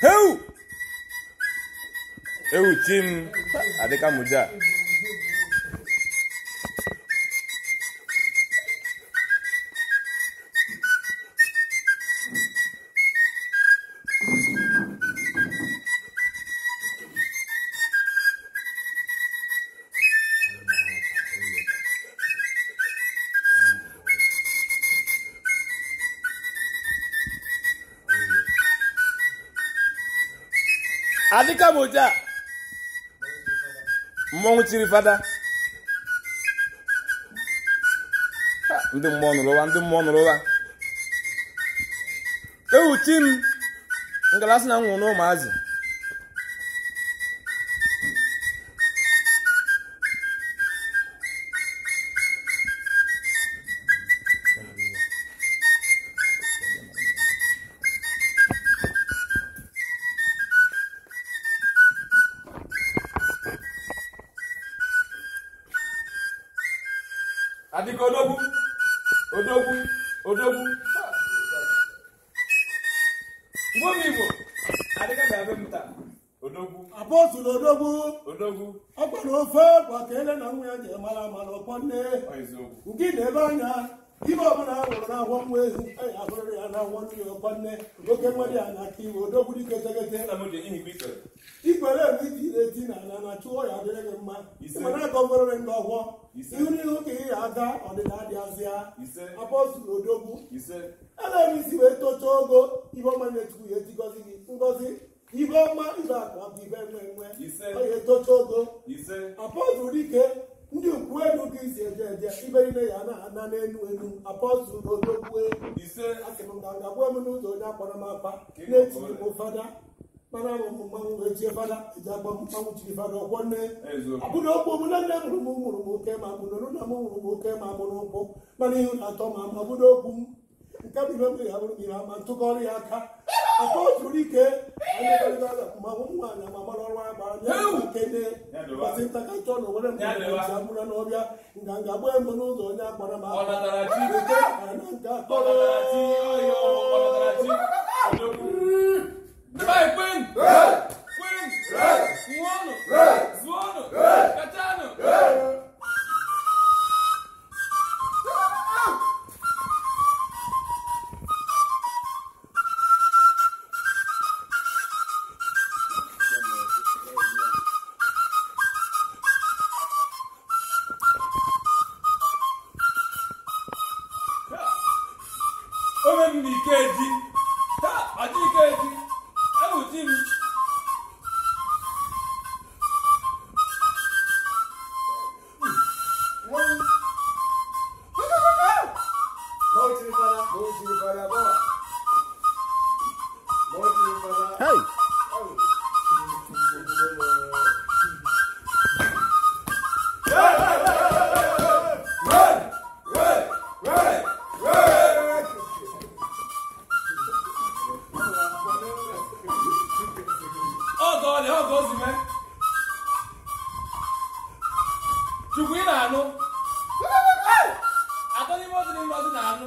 Heu! Heu, team Adeka Muja. adịka m mmọnwụ chiri fada ndị mmụọ nụrụ ụwa ndị mmụọ nụrụ ụwa ewuchi m ngalasi na nwụrụ ụmụazị adịka odogwu odogwu odogwu igbo m igbo adịka ga-abịa m odogwu apọtụl odogwu odogwu ọ ofe kwa ka ele na nwa ya ji mara mana ọkpọ nne ugị na ebe anya ibe ọbụla a nwụrụ n'ahụ nwa ehu anyị ahụrịrị ya na nwa nri ọkwa nne oke nwere ya na aka iwe odogburu iketegete ikwere ebe iji ire na ala na chụọ ya dịrị gị mma mana aka ọgwụrịrị ndị ọhụọ ihu n'ihu ka ị ga-aga ọdịda dị azịa apọstụl odogwu ele isi wee tochaa ogo ibe ọma na-etukwu ya ejigozi gị ngozi ibe ọma ibe akụ abụ ibe nwe nwe ọ ya etocha ogo apọstụl dike ndị ukwu elu gị si eje eje iberibe ya na n'elu elu apọstụl odogwue ise asịmngangagbuo m n'ụzọ onye akpọrọ m akpa na-etinye m fada mana mụ mmanwụ wee tie fada eji agba mmanwụ chiri fada ọkwọ nne abụna okwu mụ na nne mụrụ m mụrụ m oke ma abụna na m mụrụ m oke ma abụna ụkwụ mana ihu na-atọ ma abụna okwu m nke bụ ihe ya abụrụ mmiri ama ntụkọrọ ya aka aka o juru ike ma ụmụ nwaanyị ama mara ọrụ agba anya kene ka ntakachọ na onwere mgbe ji abụrụ n'ọbịa nga nga gbaa mbọ n'ụzọ onye agbara m aka na nke akọrọ ike eji taa ọchị ike eji ewuchi Hey! chukwu ị na-anụ n'ime ozi na ime ozi na-anụ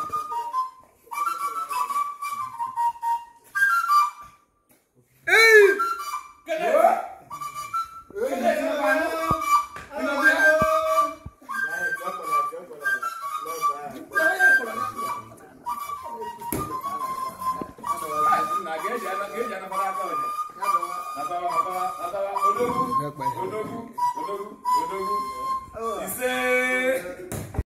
fẹ́ pa ẹ̀.